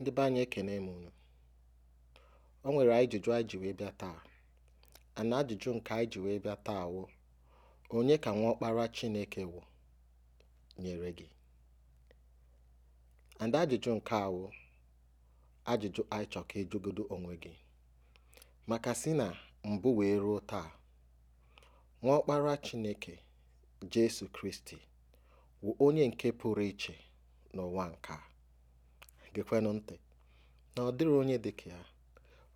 Ndị be anyị ekene m unu. O nwere ajụjụ anyị ji wee bịa taa ana ajụjụ nke anyị ji wee bịa taa wụ onye ka nwa ọkpara Chineke wụ nyere gị and ajụjụ nke a wụ ajụjụ anyị chọ ka ịjụgodu e onwe gị maka si na mbụ wee ruo taa ọkpara Chineke Jesu Kristi wụ onye nke pụrụ iche n'ụwa nke a. gekwenụ ntị na ọ dịrị onye dị ka ya,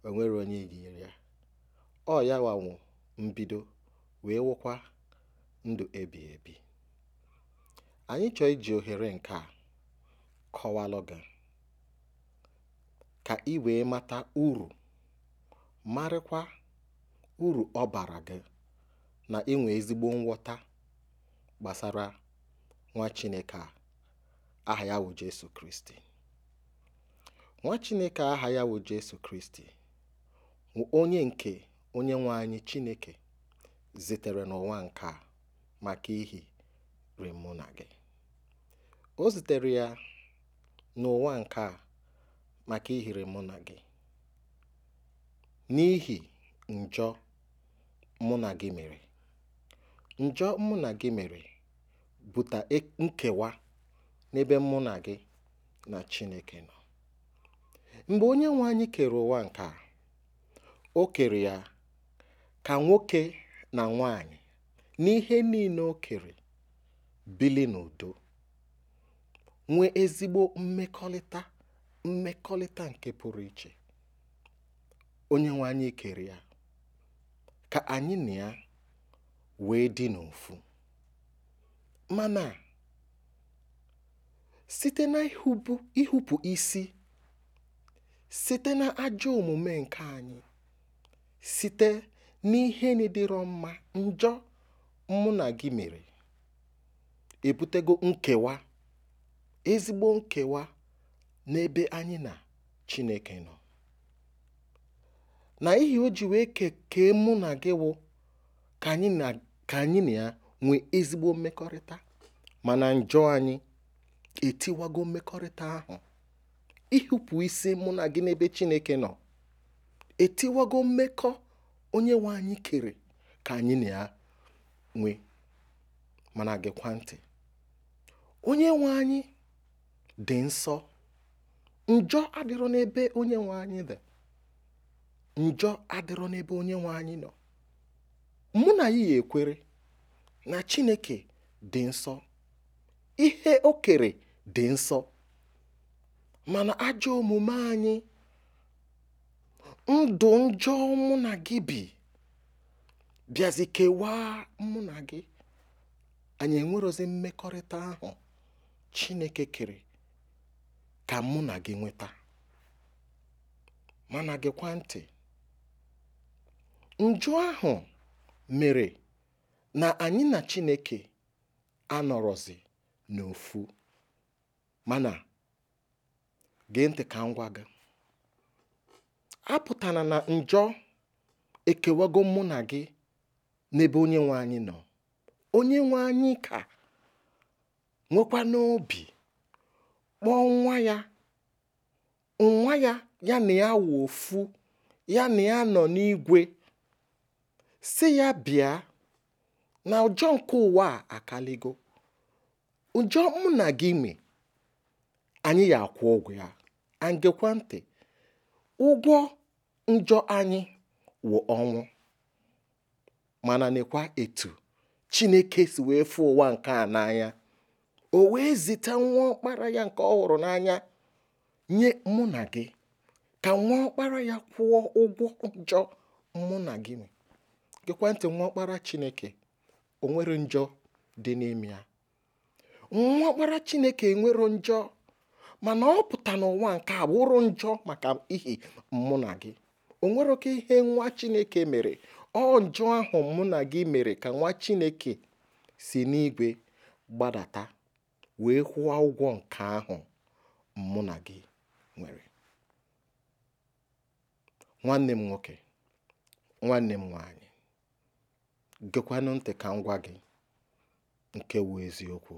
o onye yinyere ya. Ọ ya wụ mbido wee wụkwa ndụ ebi ebi. Anyị chọọ iji ohere nke a kọwalụ gị ka ị wee mata uru marịkwa uru ọ bara gị na inwe ezigbo nghọta gbasara nwa Chineke a aha ya wụ Jesu Kristi. Nwa Chineke aha ya bụ Jesu Kristi onye nke onye nwe anyị Chineke zitere n'ụwa nke a maka ihi mụ na gị. O zitere ya n'ụwa nke a maka ihere mụ na gị n'ihi njọ mụ na gị mere njọ mụ na gị mere bụta e-, nkewa n'ebe mụ na gị na Chineke nọ mgbe onye nwe anyị kere ụwa nke a o kere ya ka nwoke na nwanyị n'ihe niile o kere bili n'udo nwee ezigbo mmekọrịta mmekọrịta nke pụrụ iche onye nwe kere ya ka anyị na ya wee dị n'ofu mana site na ihupu isi site na ajọ omume nke anyị site n'ihe na-edịrọ mma njọ mụ na gị mere ebutego nkewa ezigbo nkewa n'ebe anyị na Chineke nọ na ihe o ji wee kekee mụ na gị wụ ka anyị na ka anyị na ya nwee ezigbo mmekọrịta mana njọ anyị etiwago mmekọrịta ahụ ịhụpụ isi mụ na gị n'ebe chineke nọ etiwago mmekọ onye nwe anyị kere ka anyị na ya nwee mana gịkwa ntị onye nwe anyị dị nsọ njọ adịrọ n'ebe onye nwe anyị dị njọ adịrọ n'ebe onye nwe anyị nọ mụ na ya ekwere na chineke dị nsọ ihe o kere dị nsọ mana ajọ omume anyị ndụ njọ mụ na gị bi bịazi kewaa mụ na gị anyị enwerozi mmekọrịta ahụ chineke kere ka mụ na gị nweta mana gịkwa ntị njọ ahụ mere na anyị na chineke anọrọzi n'ofu mana gee ntị ka m gwa gị apụtara na njọ ekewago mụ na gị n'ebe onye nwe anyị nọ onye nwe anyị ka nwekwa n'obi kpọọ nwa ya nwa ya ya na ya wụ ofu ya na ya nọ n'igwe si ya bịa na ụjọ nke ụwa a akaligo ụjọ mụ na gị me anyị ya akwụ ụgwọ ya and ntị ụgwọ njọ anyị wụ ọnwụ mana nekwa etu chineke si wee fụ ụwa nke a n'anya o wee zite nwa ọkpara ya nke ọ hụrụ n'anya nye mụ na gị ka nwa ọkpara ya kwụọ ụgwọ njọ mụ na gị gekwa ntị nwa ọkpara chineke o njọ dị ya nwa ọkpara chineke enwero njọ mana ọ pụta n'ụwa nke a bụrụ njọ maka ihi mụ na gị o nwere oke ihe nwa chineke mere ọ njọ ahụ mụ na gị mere ka nwa chineke si n'igwe gbadata wee kwụọ ụgwọ nke ahụ mụ na gị nwere nwanne m nwoke nwanne m nwanyị gekwanụ ntị ka m gwa gị nke wu eziokwu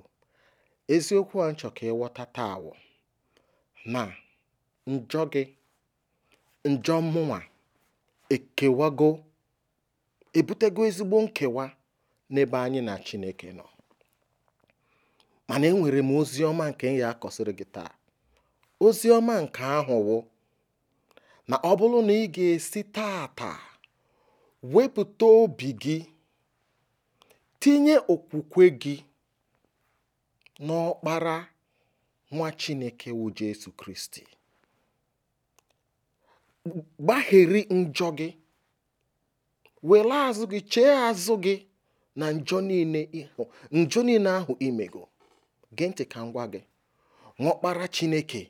eziokwu a nchọ ka ịghọta taa awụ na njọ gị njọ mụwa ekewago èbutego ezigbo nkewa n'ebe anyị na chineke nọ mana m ozi ọma ọma nke ya akọsịrị gị taa oziọma ọma ahụ̀ wụ na ọ bụrụ na ị ga-esi taàtà wepụta obi gị tinye okwukwe gị n'ọkpara nwa Chineke wụ Jesu Kristi gbagheri njọ gị were azụ gị chee azụ gị na njọ niile ịhụ njọ niile ahụ imego gee ntị ka ngwa gị ṅụọkpara Chineke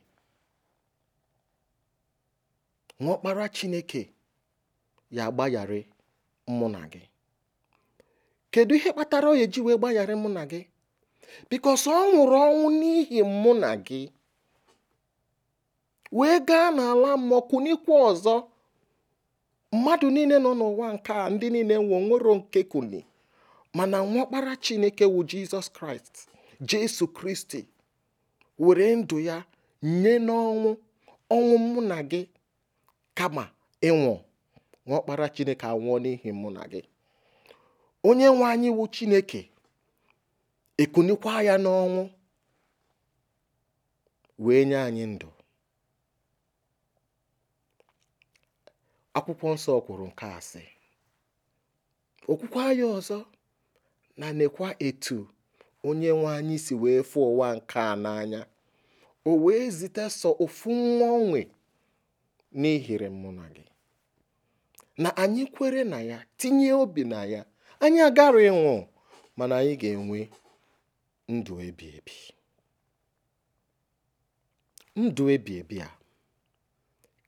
ṅụọkpara Chineke ya agbagharị mụ na gị kedu ihe kpatara onye ji wee gbaghara mụ na gị bikos ọ nwụrụ ọnwụ n'ihi mụ na gị wee gaa n'ala mmụọ kunikwa ọzọ mmadụ niile nọ n'ụwa nke a ndị niile nwe nwero nke kuni mana nwakpara chineke wu jizọs kraịst jesu kristi were ndụ ya nye n'ọnwụ ọnwụ mụ na gị kama ịnwụ nwakpara chineke anwụọ n'ihi mụ na gị onye nwe anyị wu chineke ekunikwa ya n'ọnwụ wee nye anyị ndụ akwụkwọ nsọ kwuru nke asị okwukwa ya ọzọ na nekwa etu onye nwe anyị si wee fụ ụwa nke a n'anya o wee zite sọ ofu nwa onwe n'ihere mụ na gị na anyị kwere na ya tinye obi na ya anyị agara ịnwụ mana anyị ga-enwe ndụ ebighị ebi ndụ ebighị ebi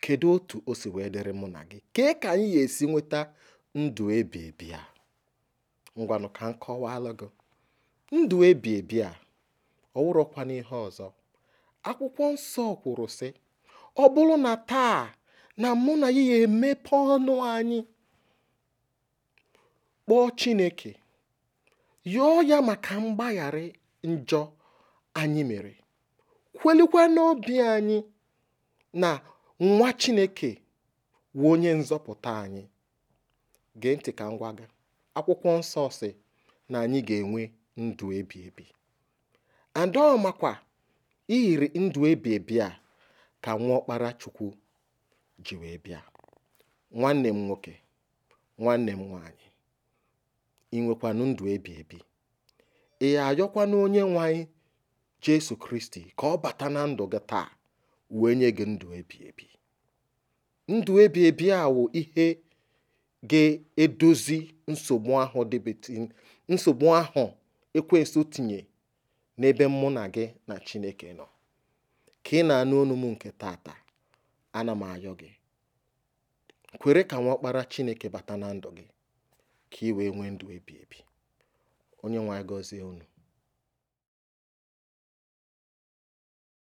kedu otu o si wee dịrị mụ na gị kee ka anyị ga-esi nweta ndụ ebighị ebi a ngwanụ ka m kọwaalụ gị ndụ ebighị ebi a ihe ọzọ akwụkwọ nsọ kwuru sị ọ bụrụ na taa na mụ na ya emepe ọnụ anyị kpọọ Chineke yọọ ya maka mgbaghara njọ anyị mere kwelikwa n'obi anyị na nwa chineke wụ onye nzọpụta anyị gee ntị ka ngwa gị akwụkwọ nsọ si na anyị ga-enwe ndụ ebi ebi adaọmakwa iyiri ndụ ebi ebi a ka nwa ọkpara chukwu ji wee bịa nwanne m nwoke nwanne m nwaanyị ị nwekwanụ ndụ ebi ebi ị ayọkwa na onye nwe anyị jesu kristi ka ọ bata na ndụ gị taa wee nye gị ndụ ebi ebi ndụ ebi ebi a wụ ihe ga-edozi nsogbu ahụ nsogbu ahụ ekwensu tinye n'ebe mụ na gị na chineke nọ ka ị na-anụ ọnụ m nke tata ana m ayọ gị kwere ka nwa kpara chineke bata na ndụ gị ka ị wee nwee ndụ ebi ebi Onyenwe anyị gọzie unu.